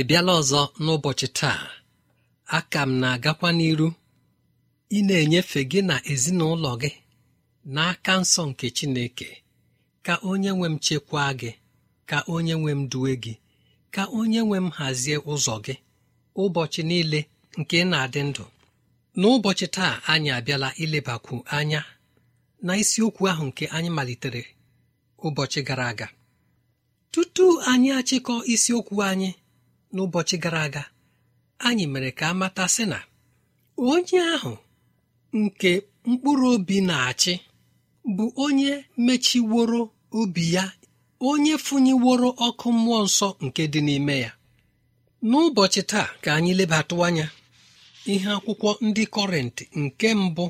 ị bịala ọzọ n'ụbọchị taa aka m na-agakwa n'iru ị na-enyefe gị na ezinụlọ gị n'aka nsọ nke Chineke ka onye nwe m chekwaa gị ka onye nwe m duwe gị ka onye nwe m hazie ụzọ gị ụbọchị niile nke na-adị ndụ n'ụbọchị taa anyị abịala ilebakwu anya na isiokwu ahụ nke anyị malitere ụbọchị gara aga tutu anyị achịkọ isiokwu anyị n'ụbọchị gara aga anyị mere ka a matasị sị na onye ahụ nke mkpụrụ obi na-achị bụ onye mechiworo obi ya onye funyeworo ọkụ mmụọ nsọ nke dị n'ime ya n'ụbọchị taa ka anyị lebatụ anya ihe akwụkwọ ndị kọrenti nke mbụ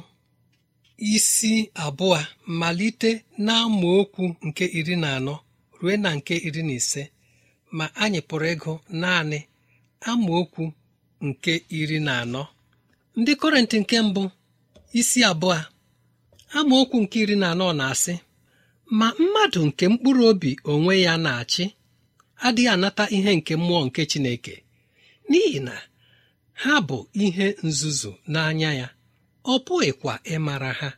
isi abụọ malite na okwu nke iri na anọ rue na nke iri na ise ma anyị pụrụ ịgụ naanị amaokwu nke iri na anọ ndị kọrentị nke mbụ isi abụọ amaokwu nke iri na anọ na-asị ma mmadụ nke mkpụrụ obi onwe ya na-achị adịghị anata ihe nke mmụọ nke Chineke n'ihi na ha bụ ihe nzuzu n'anya ya ọ pụghịkwa ịmara ha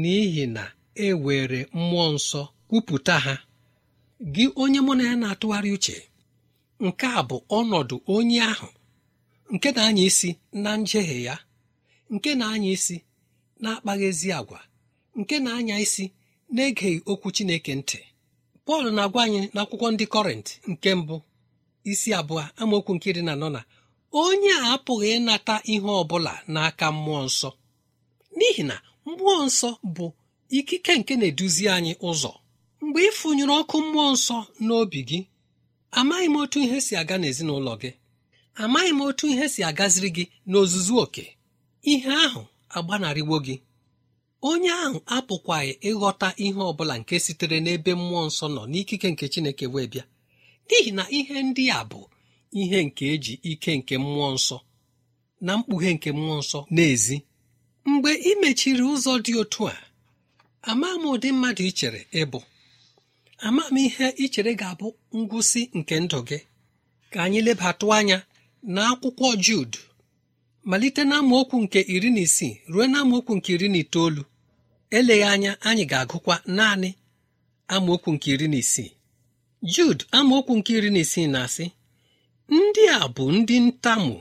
n'ihi na e were mmụọ nsọ kwupụta ha gị onye mụ na ya na-atụgharị uche nke a bụ ọnọdụ onye ahụ nke na-anya isi na njehie ya nke na-anya isi na-akpaghị ezi agwa nke na-anya isi na-egeghị okwu chineke ntị pọl na-agwa anyị n'akwụkwọ ndị kọrịntị nke mbụ isi abụọ amaokwu nke na anọ na onye a apụghị ịnata ihe ọ bụla n'aka mmụọ nsọ n'ihi na mmụọ nsọ bụ ikike nke na-eduzi anyị ụzọ mgbe ịfụnyụrụ ọkụ mmụọ nsọ n'obi gị amaghị m otu ihe si aga n'ezinụlọ gị amaghị m otu ihe si agaziri gị n'ozuzu oke ihe ahụ agbanarịwo gị onye ahụ apụkwaghị ịghọta ihe ọ bụla nke sitere n'ebe mmụọ nsọ nọ n'ikike nke chineke wee bịa n'ihi na ihe ndị a bụ ihe nke eji ike nke mmụọ nsọ na mkpughe nke mmụọ nsọ n'ezi mgbe ị mechiri ụzọ dị otu a amaghị m ụdị mmadụ ị chere ịbụ amamihe ichere ga-abụ ngwụsị nke ndụ gị ka anyị lebatụ anya na akwụkwọ Jud malite na nke iri na isii ruo na nke iri na itoolu eleghị anya anyị ga-agụkwa naanị amaokwu nke iri na isii Jud amaokwu nke iri na isii na-asị ndị a bụ ndị ntamu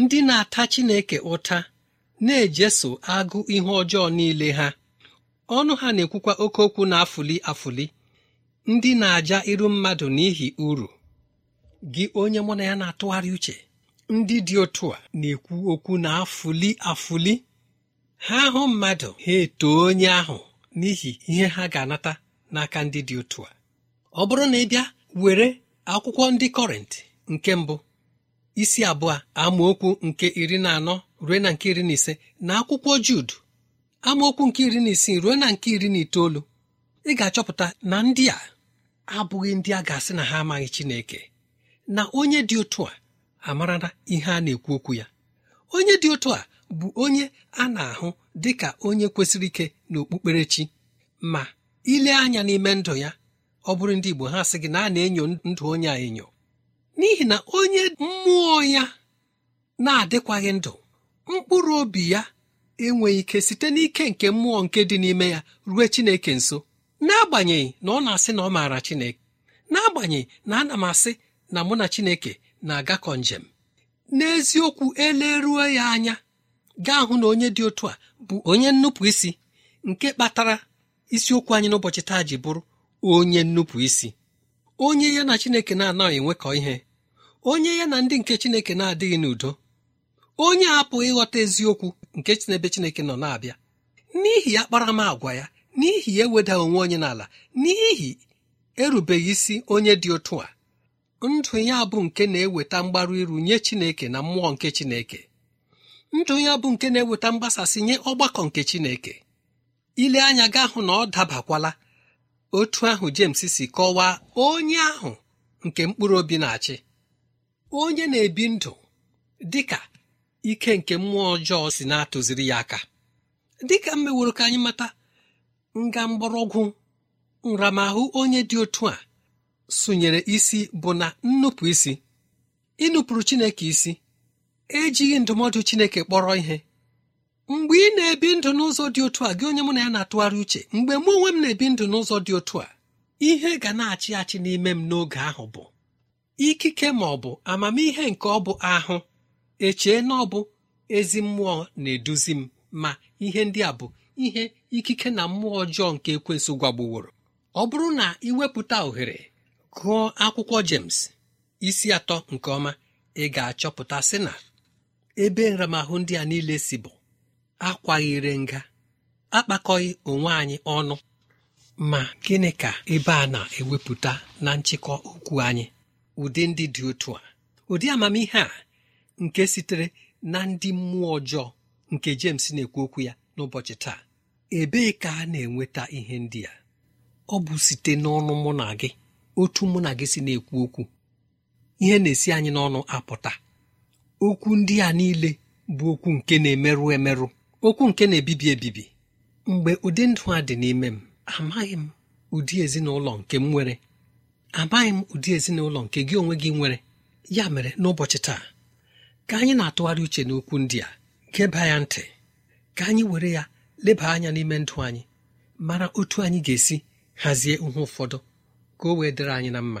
ndị na-ata Chineke ụta na-ejeso agụ ihe ọjọọ niile ha ọnụ ha na-ekwukwa oke okwu na-afụli afụli ndị na-aja iru mmadụ n'ihi uru gị onye mụ na ya na-atụgharị uche ndị dị otu a na-ekwu okwu na afụli afụli ha hụ mmadụ ha eto onye ahụ n'ihi ihe ha ga-anata n'aka ndị dị otu a ọ bụrụ na ị bịa were akwụkwọ ndị kọrịntị nke mbụ isi abụọ amaokwu nke iri na anọ ruo na nke iri na ise na akwụkwọ Jud amaokwu nke iri na isii ruo na nke iri na itoolu ị ga-achọpụta na ndị a abụghị ndị a ga-asị na ha amaghị Chineke na onye dị otu a amarala ihe a na-ekwu okwu ya onye dị otu a bụ onye a na-ahụ dị ka onye kwesịrị ike n'okpukperechi ma ile anya n'ime ndụ ya ọ bụrụ ndị Igbo ha sị gị na a na-enyo ndụ onye a enyo n'ihi na onye mmụọ ya na-adịkwaghị ndụ mkpụrụ obi ya enweghị ike site n'ike nke mmụọ nke dị n'ime ya rue Chineke nso n'agbanyeghị na ọ na-asị na ọ maara chineke n'agbanyeghị na ana m asị na mụ na chineke na-agakọ njem n'eziokwu eleruo ya anya gaa hụ na onye dị otu a bụ onye nnupụ isi nke kpatara isiokwu anyị n'ụbọchị taa ji bụrụ onye nnupụ isi onye ya na chineke na-anaghị enwekọ ihe onye ya na ndị nke chineke na-adịghị n'udo onye apụghị ịghọta eziokwu nke chinebe chineke nọ na-abịa n'ihi ya kparamagwa ya n'ihi eweda onwe onye n'ala n'ihi erubeghị isi onye dị otu a ndụ ya bụ nke na-eweta mgbaru iru nye chineke na mmụọ nke chineke ndụ ya bụ nke na-eweta mgbasasị nye ọgbakọ nke chineke ile anya ga hụ na ọ dabakwala otu ahụ James si kọwaa onye ahụ nke mkpụrụ obi na-achị onye na-ebi ndụ dị ka ike nke mmụọ ọjọọ si na-atụziri ya aka dịka m meworo ka anyị mata nga mgbọrọgwụ nramahụ onye dị otu a sụnyere isi bụ na nnupụ isi ịnụpụrụ chineke isi ejighị ndụmọdụ chineke kpọrọ ihe mgbe ị na-ebi ndụ n'ụzọ dị otu a gị onye mụ na ya na-atụgharị uche mgbe mụ onwe m na-ebi ndụ n'ụzọ dị otu a ihe ga na-achị achị n'ime m n'oge ahụ bụ ikike ma ọ bụ amamihe nke ọ bụ ahụ echee na ọ bụ ezi mmụọ na-eduzi m ma ihe ndị a bụ ihe ikike na mmụọ ọjọọ nke ekwensụ gwagbuworo ọ bụrụ na iwepụta ohere gụọ akwụkwọ James isi atọ nke ọma ị ga-achọpụta sị na ebe nramahụ ndị a niile si bụ akwaghịre nga akpakọghị onwe anyị ọnụ ma gịnị ka ebe a na-ewepụta na nchịkọ okwu anyị ụdị ndị dị otu a ụdị amamihe a nke sitere na ndị mmụọ ọjọọ nke James na-ekwu okwu ya n'ụbọchị taa ebee ka a na-enweta ihe ndị a ọ bụ site n'ọnụ mụ na gị otu mụ na gị si na-ekwu okwu ihe na-esi anyị n'ọnụ apụta okwu ndị a niile bụ okwu nke na-emerụ emerụ okwu nke na-ebibi ebibi mgbe ụdị ndụ a dị n'ime m amaghị m ụdị ezinụlọ nke m nwere amaghị m ụdị ezinụlọ nke gị onwe gị nwere ya mere n'ụbọchị taa ka anyị na-atụgharị uche n'okwu ndị a geba ya ntị ka anyị were ya leba anya n'ime ndụ anyị mara otu anyị ga-esi hazie ihe ụfọdụ ka o wee dịrị anyị na mma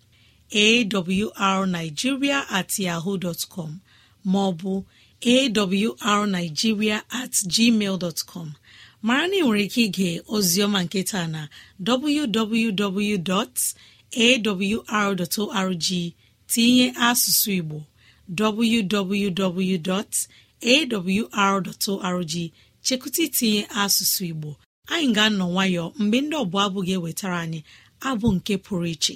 awrnigeria at yahoo dọtcom maọbụ awrnigeria at gmail dọtcom mara na ị nwere ike ige ozioma nketa na www.awr.org tinye asụsụ igbo www.awr.org chekụta itinye asụsụ igbo anyị ga-anọ nwayọ mgbe ndị ọbụla abụ ga-ewetara anyị abụ nke pụrụ iche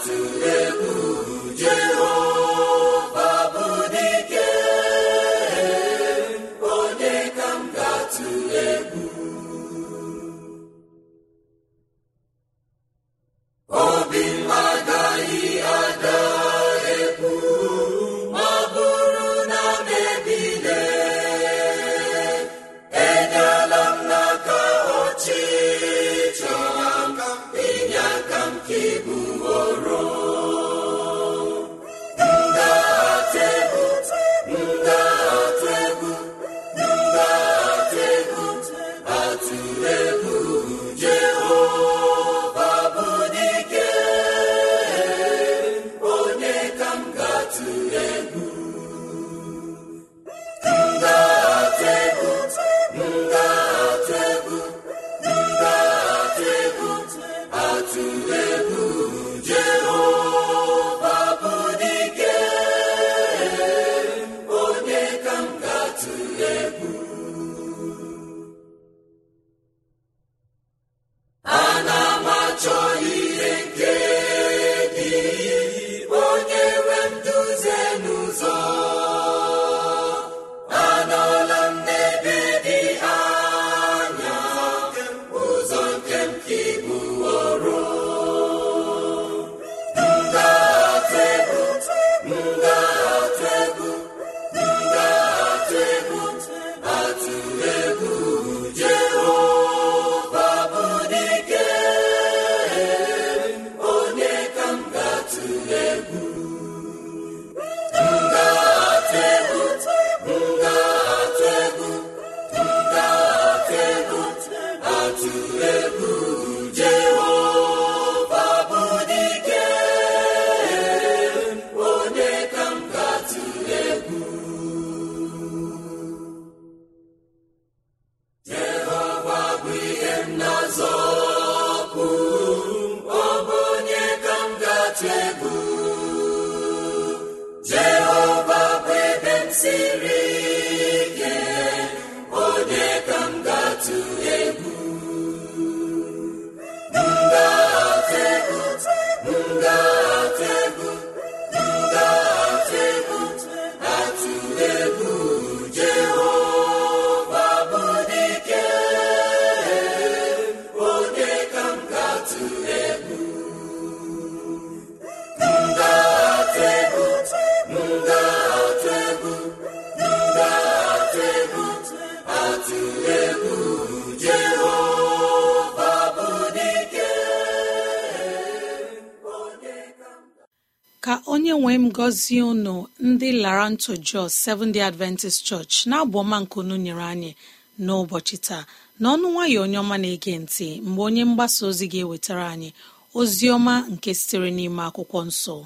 atụle egwu Jehova onwe m gọzie unu ndị larantu jos seventh day adventist church na-abụ ọma unu nyere anyị n'ụbọchị taa n'ọnụ nwayọ onye ọma na-ege ntị mgbe onye mgbasa ozi ga-ewetara anyị ozi ọma nke sitere n'ime akwụkwọ nsọ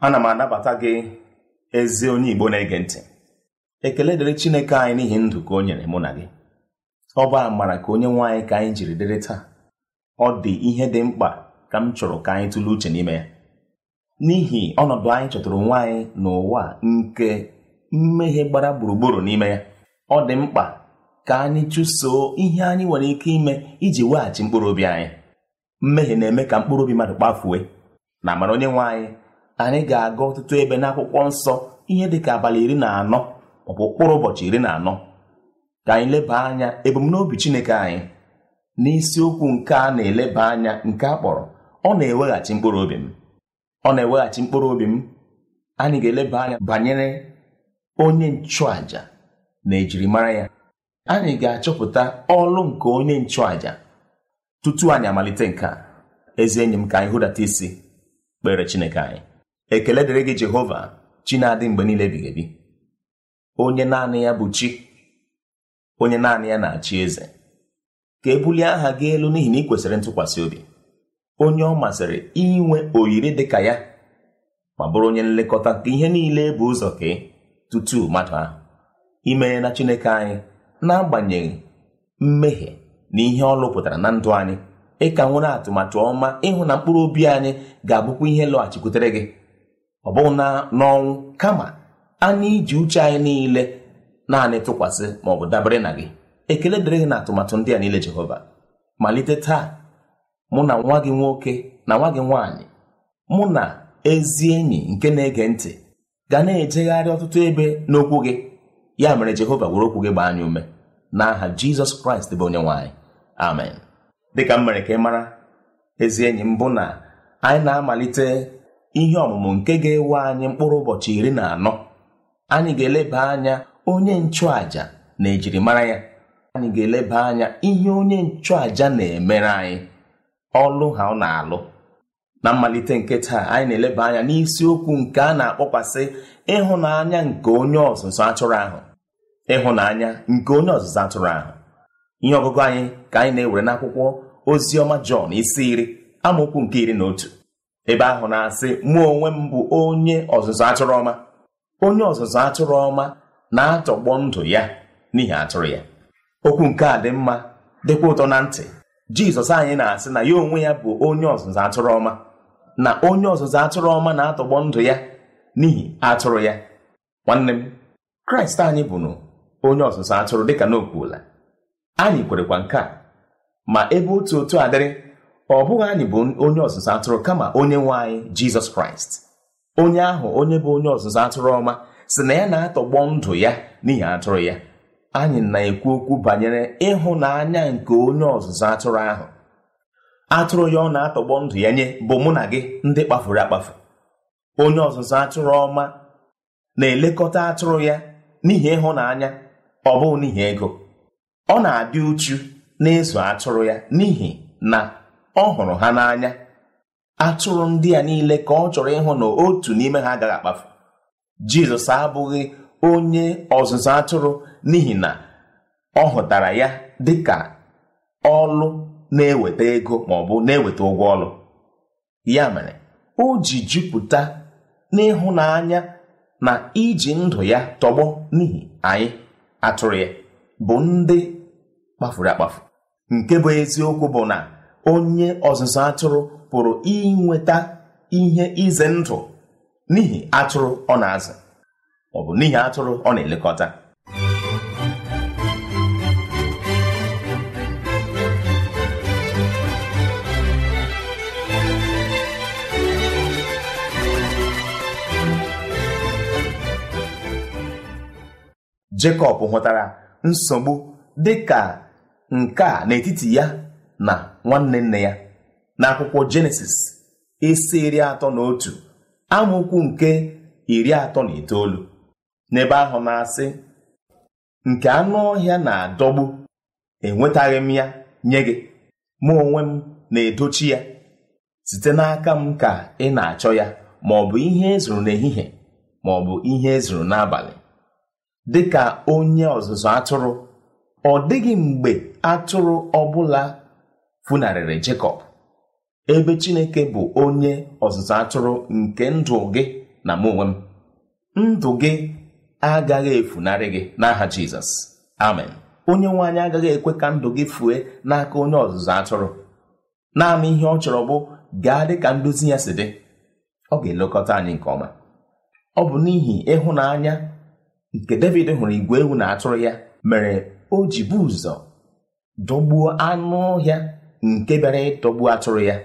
ana m anabata gị ezi onye igbo na-ege ntị ekele dịrị chineke anyị n'ihi ndụ ka o nyere mụ na gị ọ bụ amara ka onye nwaanyị ka anyị jiri dịrị taa ọ dị ihe dị mkpa ka m chọrọ ka anyị tụlee uche n'ime ya n'ihi ọnọdụ anyị chọtụrụ nwaanyị anyị n'ụwa nke mmehie gbara gburugburu n'ime ya ọ dị mkpa ka anyị chụsoo ihe anyị nwere ike ime iji weghachi mkpụrụ obi anyị mmehie na-eme ka mkpụrụ obi mmadụ kpafue na amara onye nwe anyị anyị ga-aga ọtụtụ ebe n'akwụkwọ nsọ ihe dị ka abalị iri na anọ maọbụ ụkpụrụ ụbọchị iri na anọ ka anyị leba anya ebumnobi Chineke anyị n'isiokwu nke a na-eleba anya nke a kpọrọ ọ na-eweghachi mkpụrụ obi m ọ na-eweghachi mkpụrụ obi m anyị ga-eleba anya banyere onye nchụàja na ejirimara ya anyị ga-achọpụta ọlụ nke onye nchụàja tutu anyị amalite nke a ezi enyi m ka anyị hụdata isi kpere Chineke anyị ekele dịrị gị jehova chi na-adị mgbe niile ebighị ebi onye naanị ya bụ chi onye naanị ya na-achị eze ka e bulie aha gị elu n'ihi na ị kwesịrị ntụkwasị obi onye ọ masịrị inwe oyiri dị ka ya ma bụrụ onye nlekọta ka ihe niile bụ ụzọ ka e tutu mmadụ ahụ imere na chineke anyị n'agbanyeghị mmehie na ihe ọ lụpụtara na ndụ anyị ịka nwere atụmatụ ọma ịhụ na mkpụrụ obi anyị ga-abụkwa ihe lọghachikwutere gị ọ bụghị na n'ọnwụ kama anya iji uche anyị niile naanị tụkwasị ma ọ bụ dabere na gị ekele dịrị gị na atụmatụ ndị a niile jehova malite taa mụ na nwa gị nwoke na nwa gị nwaanyị mụ na ezi enyi nke na-ege ntị ga na-ejegharị ọtụtụ ebe n'okwu gị ya mere jehova were okwu gị gbaa anyị ume n'aha jizọs kraịst bụ onye nwaanyị amen dịka m mere ka ị mara ezi enyi m bụ na anyị na-amalite ihe ọmụmụ nke ga-ewe anyị mkpụrụ ụbọchị iri na anọ anyị ga-eleba anya onye nchụàja na ejirimara ya anyị ga-eleba anya ihe onye nchụàja na-emere anyị ọlụ ha ọ na-alụ na mmalite nke taa anyị na-eleba anya n'isiokwu nke a na-akpọkwasị ịhụnanya nke onye ọzụzụ atụrụ ahụ ịhụnanya nke onye ọzụzụ atụrụ ahụ ihe ọgụgụ anyị ka anyị na-ewere n'akwụkwọ oziọma jọn isi iri amaokwu nke iri na otu ebe ahụ na-asị mụ onwe m bụ onye ọzụzụ atụrụ ọma onye ọzụzụ atụrụ ọma na-atọgbọ ndụ ya n'ihi atụrụ ya okwu nke a dị mma dịkwa ụtọ na ntị jizọs anyị na-asị na ya onwe ya bụ onye ọzụzụ atụrụ ọma na onye ọzụzụ atụrụ ọma na-atọgbọ ndụ ya n'ihi atụrụ ya nwanne m kraịst anyị bụnụ onye ọzụzụ atụrụ dịka n'okwuola anyị kwerekwa nke a ma ebe otu otu adịrị ọ bụghị anyị bụ onye ọzụzụ atụrụ kama onye nwe anyị jizọs kraịst onye ahụ onye bụ onye ọzụzụ atụrụ ọma si na ya na-atọgbọ ndụ ya n'ihi atụrụ ya anyị na-ekwu okwu banyere ịhụnanya nke onye ọzụzụ atụrụ ahụ atụrụ ya ọ na-atọgbọ ndụ ya nye bụ mụ na gị ndị kpafuru akpafu onye ọzụzụ atụrụ ọma na-elekọta atụrụ ya n'ihi ịhụnanya ọ bụghị n'ihi ego ọ na-adị uchu n'ịzụ atụrụ ya n'ihi na ọ hụrụ ha n'anya atụrụ ndị a niile ka ọ chọrọ ịhụ na otu n'ime ha agaghị akpafu jizọs abụghị onye ọzụzụ atụrụ n'ihi na ọ hụtara ya dị ka ọlụ na-eweta ego ma ọ bụ na-eweta ụgwọ ọlụ ya mere o ji jupụta n'ịhụnanya na iji ndụ ya tọgbọ n'ihi anyị atụrụ ya bụ ndị kpafuru akpafu nke bụ eziokwu bụ na onye ọzụzụ atụrụ pụrụ inweta ihe ize ndụ n'ihi atụrụ ọ na-azụ ọ bụ n'ihi atụrụ ọ na-elekọta Jekọb hụtara nsogbu dị ka nke a n'etiti ya na nwanne nne ya akwụkwọ jenesis isi iri atọ na otu amaokwu nke iri atọ na itoolu n'ebe ahụ na-asị nke anụ ọhịa na-adọgbu enwetaghị m ya nye gị ma onwe m na-edochi ya site n'aka m ka ị na-achọ ya ma ọ bụ ihe ezuru n'ehihie ma ọ bụ ihe ezuru n'abalị dị ka onye ọzụzụ atụrụ ọ dịghị mgbe atụrụ ọbụla funarịrị Jekọb ebe Chineke bụ onye ọzụzụ atụrụ nke ndụ gị na m onwe m ndụ gị agaghị efunarị gị n'aha Jizọs amen onye nwe anyị agaghị ekwe ka ndụ gị fue n'aka onye ọzụzụ atụrụ naanị ihe ọ chọrọ bụ gaa dị ka ndozi ya si dị ọ ga-elekọta anyị nke ọma ọ bụ n'ihi ịhụnanya nke David hụrụ igwe ewu na atụrụ ya mere o ji bụ ụzọ dọgbuo anụ ọhịa nke bịara ịtọgbu atụrụ ya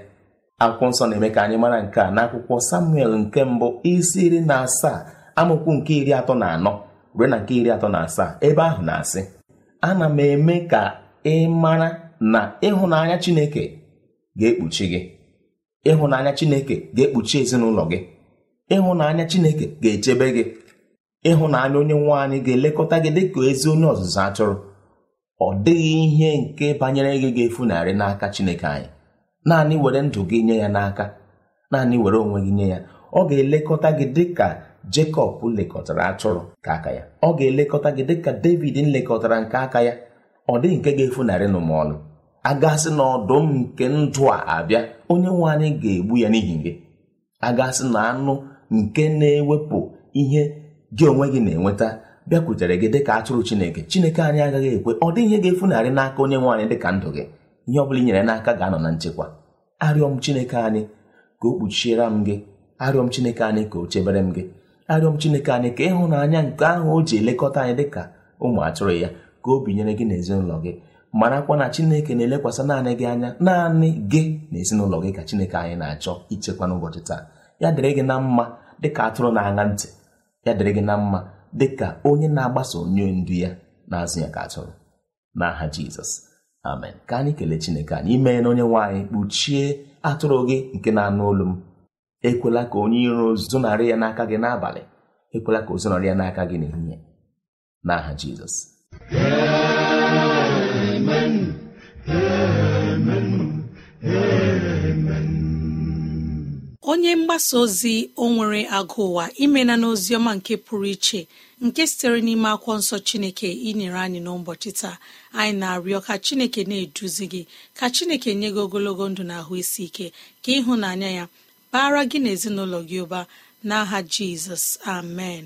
akwụkwọ nsọ na-eme ka anyị mara nke a n'akwụkwọ samuel nke mbụ isi iri na asaa amụkwu nke iri atọ na anọ ruo na nke iri atọ na asaa ebe ahụ na-asị ana m eme ka ị mara na ịhụnanya chineke ga-ekpuchi gị ịhụnanya chineke ga-ekpuchi ezinụlọ gị ịhụnanya chineke ga-echebe gị ịhụnanya onye nwe anyị ga-elekọta gị dị ka ezi onye ọzụzụ atụrụ ọ dịghị ihe nke banyere gị ga-efunarị n'aka Chineke anyị naanị were ndụ gị nye ya n'aka naanị were onwe gị nye ya ọ ga-elekọta gị dịka Jekọb lekọtara atụrụ nke aka ya ọ ga-elekọta gị dịka David nlekọtara nke aka ya ọ dịghị nke ga-efunarị n'ụmụọlụ agasị na ọdụm nke ndụ a abịa onye nwe anyị ga-egbu ya n'ihi gị agasị na anụ nke na-ewepụ ihe gị onwe gị na-enweta bịakwutere gị dịka atụrụ chineke chineke anyị agaghị ekwe ọ dịghị ihe ga-efunarị n'aka onye nwe anyị dịka ndụ gị ihe ọ bụla i nyere n'aka ga-anọ na nchekwa arịọ m chineke anyị ka o kpuchiere m gị arịọ m chineke anyị ka o chebere m gị arịọ m chineke anyị ka ịhụnanya nke ahụ o ji elekọta anyị dịka ụmụ atụrụ ya ka o binyere gị na ezinụlọ gị marakwa na chineke na-elekwasị naanị gị anya naanị gị na ezinụlọ gị ka chineke anyị na-achọ ichekwa n'ụbọchị taa ya dịrị gị na mma dịka atụrụ na-aṅa ntị ya dịrị gị na mma dị ka onye na-agbaso onye ndu ya na-azụ ya ka atụrụ n'aha jizọs amen ka anyị kelee chineke anyị mee na onye nwaanyị kpuchie atụrụ gị nke na-anụ olu m ekwela ka onye iro zụnarị ya n'aka gị n'abalị ekwela ka o zụnarị ya n'aka gị n'ehihie n'aha jizọs onye mgbasa ozi o nwere agụ ụwa imena ọma nke pụrụ iche nke sitere n'ime akwụkwọ nsọ chineke inyere anyị n'ụbọchị taa anyị na-arịọ ka chineke na-eduzi gị ka chineke nye gị ogologo ndụ na ahụ isi ike ka ịhụnanya ya bara gị na gị ụba n'aha jizọs amen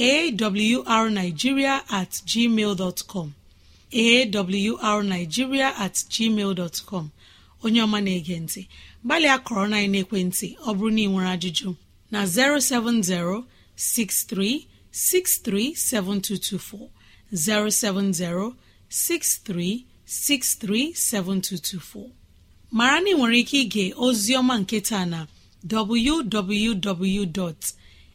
awrnigeria at gmail dot com awrnigeria at gmail dot com onye ọma na-ege ntị gbalịa kọrọ na ekwentị ọ bụrụ na ị nwere ajụjụ na 07063637224 07063637224 mara na ị nwere ike ige ozi ọma nke taa na www.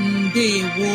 ndewo